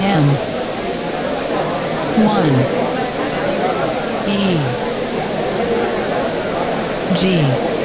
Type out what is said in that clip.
M 1 E G